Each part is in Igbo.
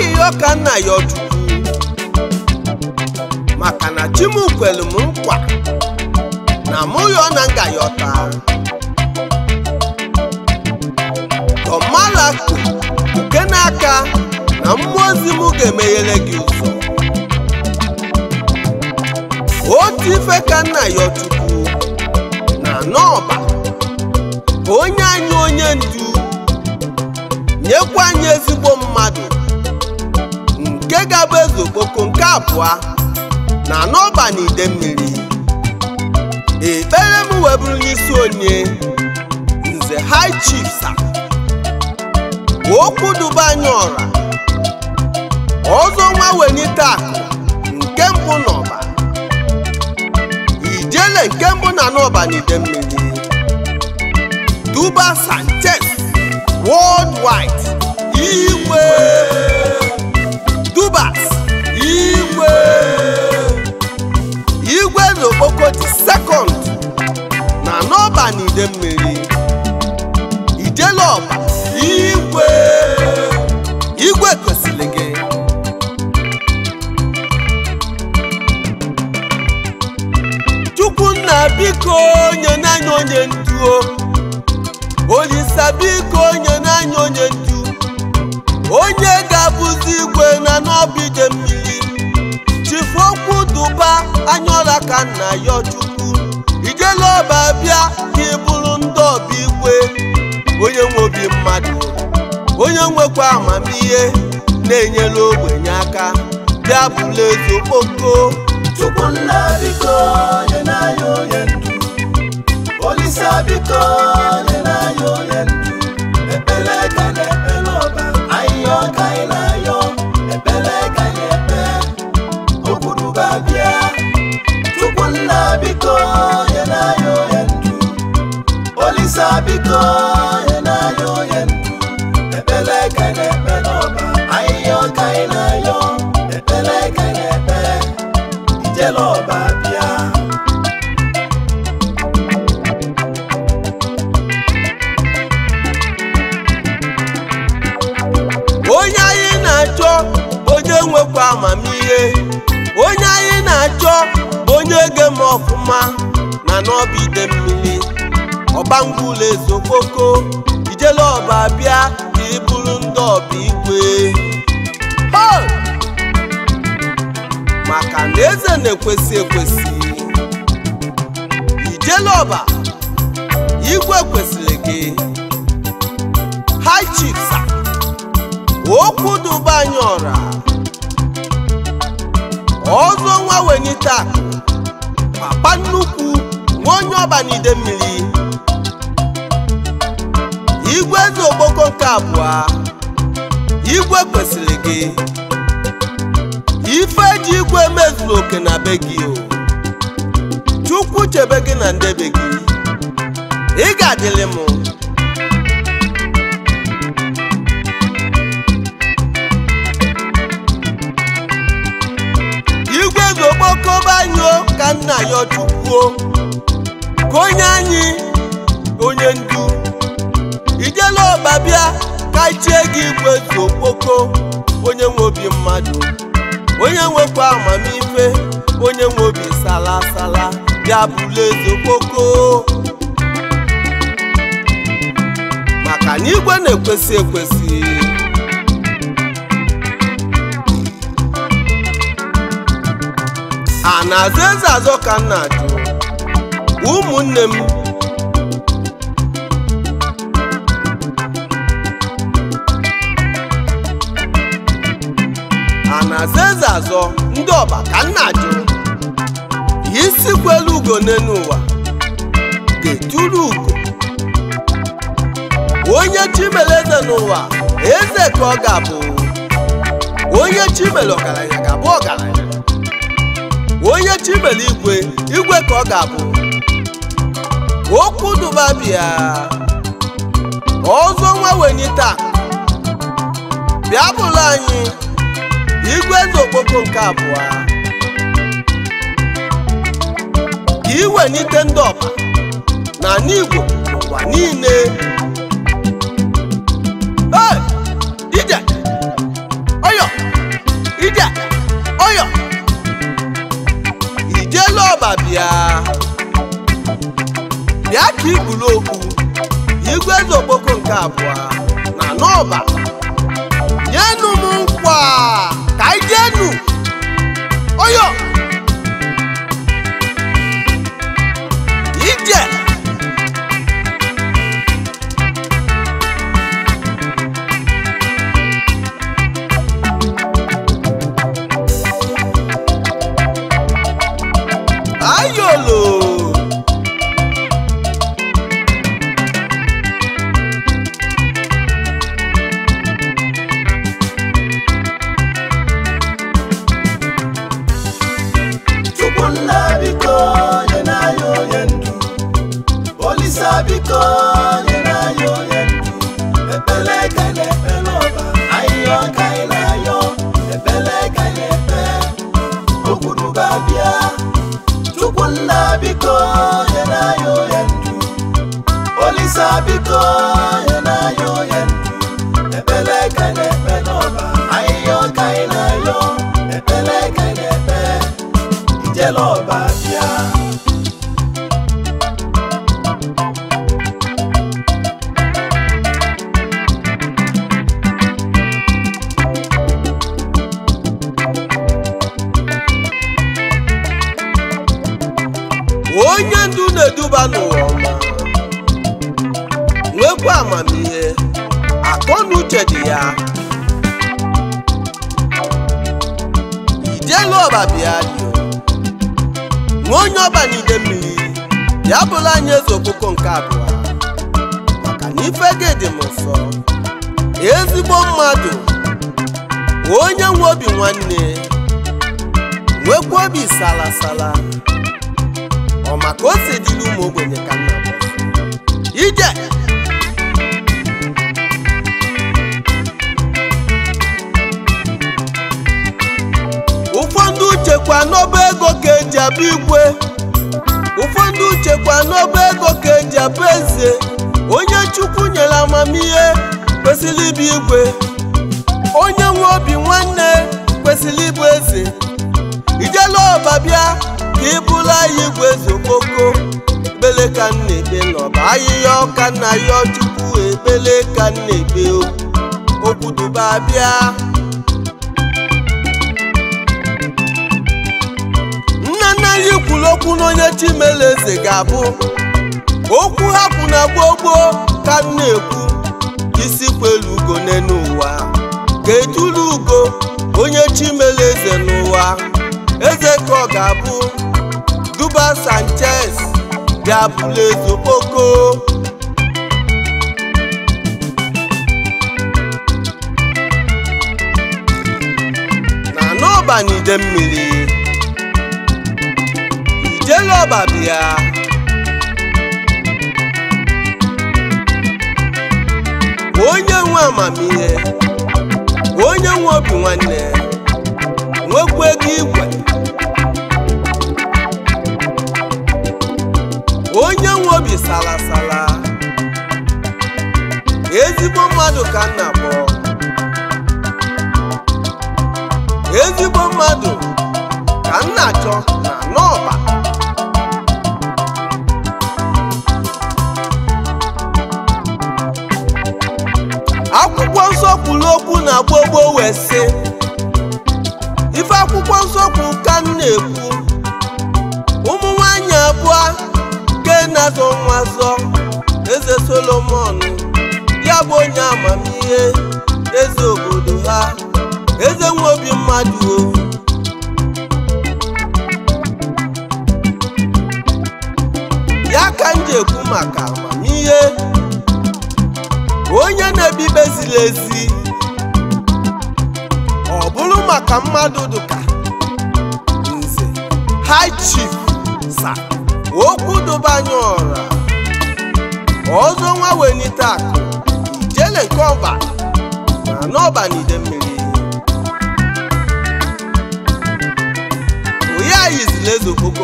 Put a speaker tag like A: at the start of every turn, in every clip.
A: n'ihi ọka nna ya ọchukwu maka na chimukwelu m nkwa na mụ ya na nga ya ọta tọmalaku nke n'aka na mmụọ ozi m ga-emeghere gị ụzọ otu ife ka nna ya ọtụtụ na n'ọba onye anyị onye ndu nyekwa anyị ezigbo mmadụ nke ga-abụ eze nke abụọ na n'ọba na ide mmiri ekpere m wee bụrụ n'isi onye nze high chiefs okwu duba anyị ọra ọzọ nwa wenite akụ nke mbụ n'ọba ijele nke mbụ na n'ọba na ide mmiri duba sanchez worldwide igwe Rubas igwe igwe na Okpoko dị sekọnd na n'ọba na Idemmiri ọba igwe igwe gosiri gị Chukwunna biko onye na-anya onye Olisa biko onye na-anya onye ndu onye bụzi igwe na n'obi dị mmiri chifokwu duba anyaọla ka nna ya chukwu ijele ọba bịa ka ịbụrụ ndị ọba igwe onye nwe obi mmadụ onye nwekwa amamihe na-enyere ogbenye aka bịa bụla eze okpoko
B: Chukwu nna biko nye n'anya onye ndụ Olisa biko nye n'anya onye ndụ tàbí kan.
A: ọbụla ezokpoko ijele ọba bịa ka ị bụrụ ndị ọba ikwe maka na eze na-ekwesị ekwesị ijele ọba igwe kwesịrị gị high chiefs okwu duba anyị ọra ọzọ nwa wenyita papa nnukwu nwa onye ọba n'ide mmiri igwe dị ogboko nke abụọ igwe kwesịrị gị ife ji igwe mezuru oke na be gị o chukwu chebe gị na ndebe gị ị ga-adịlị m igwe dị banyụọ ka nna ya chukwuo ka onye anyị onye ndu ijela ọba bịa ka ichie gị igwe zu okpoko onye nwe obi mmadụ onye nwekwa amamife onye nwe obi sala sala bịa bụla eze okpoko maka na igwe na-ekwesị ekwesị a na-azụ eze azọ ka nna jụ ụmụnne m na-aza eze azọ ndị ọba ka nna jụrụ isi kwelu ugo n'elu ụwa ga-eturu ugo onye chimere eze n'ụwa eze ka ọ ga-abụ onye chimere ọgaranya ga-abụ ọgaranya onye chimere igwe igwe ka ọ ga-abụ okwu duba bịa ọzọ nwa taa bịa bụla anyị igwe eze okpoko nke abụọ ka nite ndị ọma na n'igwe ụwa niile ije ọyọ ije ọyọ ọba bịa bịa ka ibulu okwu igwe eze okpoko nke abụọ na n'ọba
B: olisabikoye nayo yendu olisabikoye
A: ọba bịa nwa onye ọba n'ide mmiri ya bụla anyị eze okpuku nke abụọ maka na ife gị dị m ezigbo mmadụ onye nwe obi nwanne nwekwa obi salasala ọ maka o si dị ụmụ ogbenye ka nna uchekwa n'ọba ego ka eji abụ igwe ụfọdụ uchekwa n'ọba ego ka eji abụ eze onye chukwu nyere amamihe kwesịrị ịbụ igwe onye nwe obi nwanne kwesịrị ịbụ eze ijela ọba bịa ka ị bụrụ igwe eze okoko ebele ka m na-ekpe n'ọba ahịhịa ọka na ya chukwu ebele ka m na-ekpe okwu bịa okwu n'onye eze ga-abụ okwu hapụ na gbogbo ka na-ekwu isi kwelu ugo n'ụwa ga-etulu ugo onye chimeleeze n'ụwa eze ka ọ ga-abụ duba sanchez ga-abụla eze okpoko na n'ọbanide mmiri ọba bịa onye nwe amamihe onye nwe obi nwanne nwekwa ego igwe onye nwe obi salasala ezigbo mmadụ ka nna bụ ezigbo mmadụ ka nna chọ na n'ọba nna gboo wee sị ife akwụkwọ nsọ bụ ka m na-ekwu ụmụ nwanyị abụọ ke na-azọ nwa zọ eze solomon ya bụ onye amamihe eze obodo ha eze nwe obi mmadụ o ya ka m ji ekwu maka amamihe onye na-ebibezila ezi maka mmadụ dụka nze high chif sa okwu dụbanye ọra ọzọ nwa welite akụ ijele nke ọba na n'ọba n'ide mmiri onye ayizila eze nke mbụ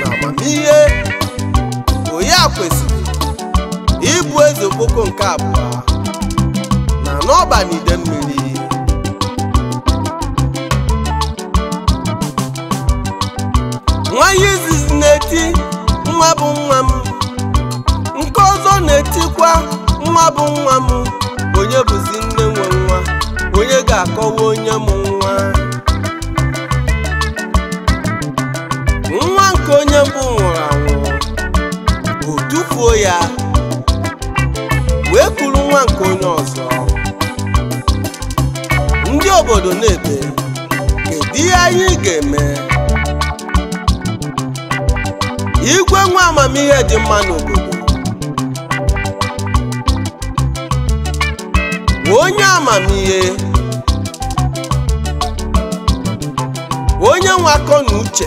A: na amamihe onye a kwesịrị ịbụ eze nke abụọ na n'ọba n'ide mmiri bụ nwa m onye bụzi nne nwe nwa onye ga-akọwa onye m nwa nwa nke onye mbụ nwụrụ anwụ o tufuo ya wee kwuru nwa nke onye ọzọ ndị obodo na-ebe kedu ihe anyị ga-eme igwe nwa amamihe dị mma n'obodo onye amamihe onye nwe akọ na uche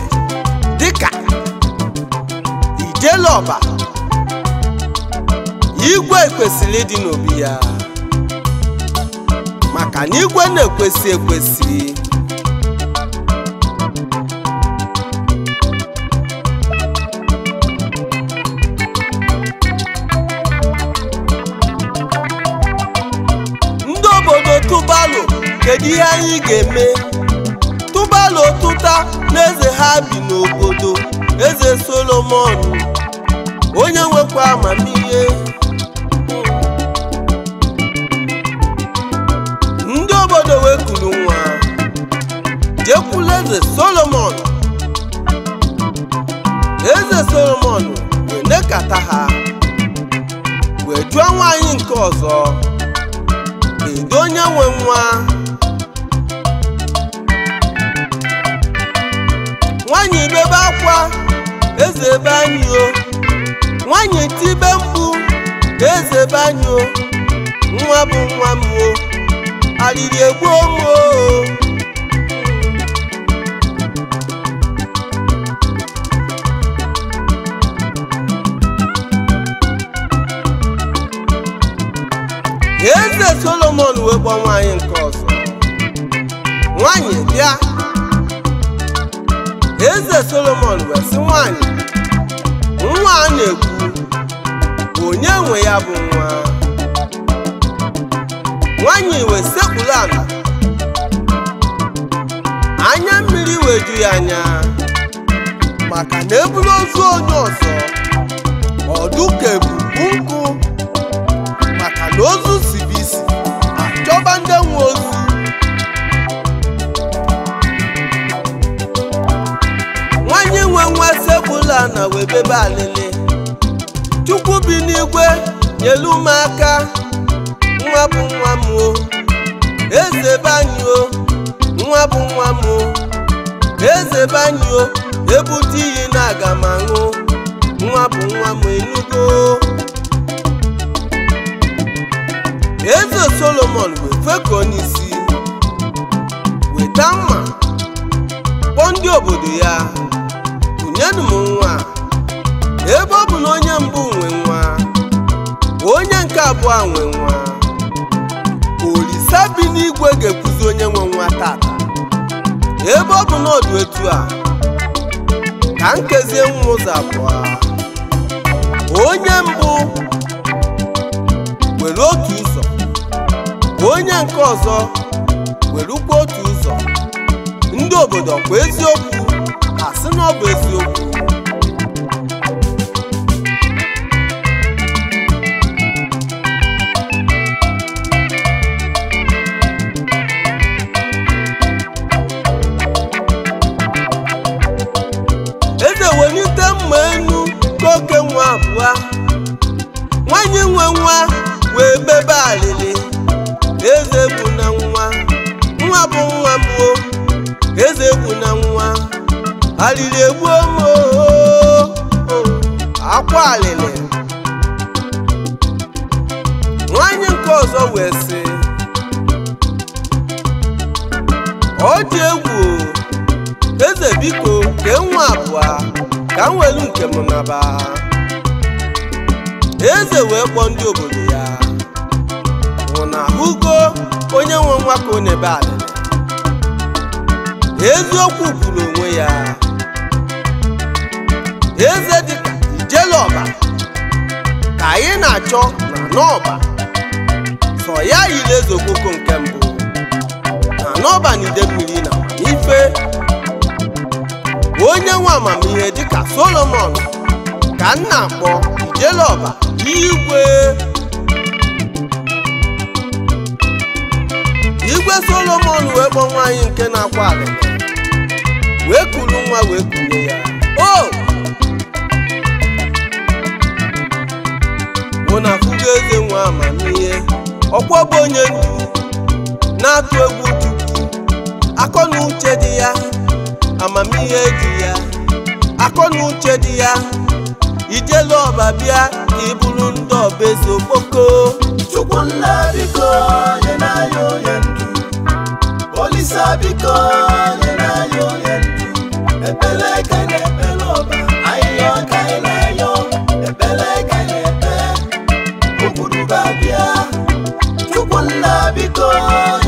A: dịka ijeluọba igwe kwesịrị ịdị n'obi ya maka na igwe na-ekwesị ekwesị kedu ihe anyị ga-eme tụbalụ ụtụta na eze ha bi n'obodo eze solomon onye nwekwa amamihe ndị obodo wee kuru nwa jekwula eze solomon eze solomon wee kata ha wee jụọ nwaanyị nke ọzọ kedu onye nwe nwa nwaanyị bebe akwa eze be anyị o nwaanyị eze be anyị o nwa bụ nwa eze solomon wee gba nwaanyị nke ọzọ eze solomon wee nwanyị nwa a na-ekwu onye nwe ya bụ nwa nwanyị wee sekpuru ala anya mmiri wee ju ya anya maka na eburu ozu onye ọzọ ọdụ ka ebubu nkụ maka na ozu si bụ isi achọba ndị nwe ozu na wee bebe chukwu bi n'igwe nyelu m aka nwa bụ nwa m o eze nwa bụ nwa m o eze banyị ebute iyi na aga m nwa bụ nwa m enugo eze solomon wee fekọọ n'isi weta mma kpọọ ndị obodo ya kụnyenụ m nwa nwe nwa olise bi n'igwe ga-ekwuzi onye nwe nwa tata ebe ọ bụ n'ọdụ etu a ka nkezie nwa ụzọ abụọ onye mbụ were otu ụzọ onye nke ọzọ werukwa otu ụzọ ndị obodo kwa eziokwu asị na ọ bụ eziokwu ọzọ wee sị ọ dị egwu eze biko kee nwa abụọ ka m welu nke m naba eze wee kpọọ ndị obodo ya nwụ na ahụgo onye nwe nwa ka ọ na-ebe eziokwu kwuru onwe ya eze dịka ọba ka anyị na-achọ na n'ọba sọ ya yiri eze okpoko nke mbụ na n'ọban mmiri na ife onye nwe amamihe dịka solomon ka nna kpọ ijelọba igwe igwe solomon wee kpọ nwaanyị nke na-akwa ala wee kuru nwa wee kunye ya o mụ na afụgo eze nwe amamihe ọkwọ bụ onye ndu na-atụ egwu chukwu akọ na uche dị ya amamihe dị ya akọ na uche dị ya ijelu ọba bịa
B: ka ị bụrụ ndị eze okpoko chukwu nna biko nye n'anya onye ndu olisa biko nye n'anya onye ndu ekpele ka na-ekpele ọba biko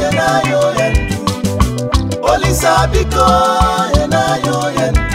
B: yena yo yendu olisa biko yena yo yendu.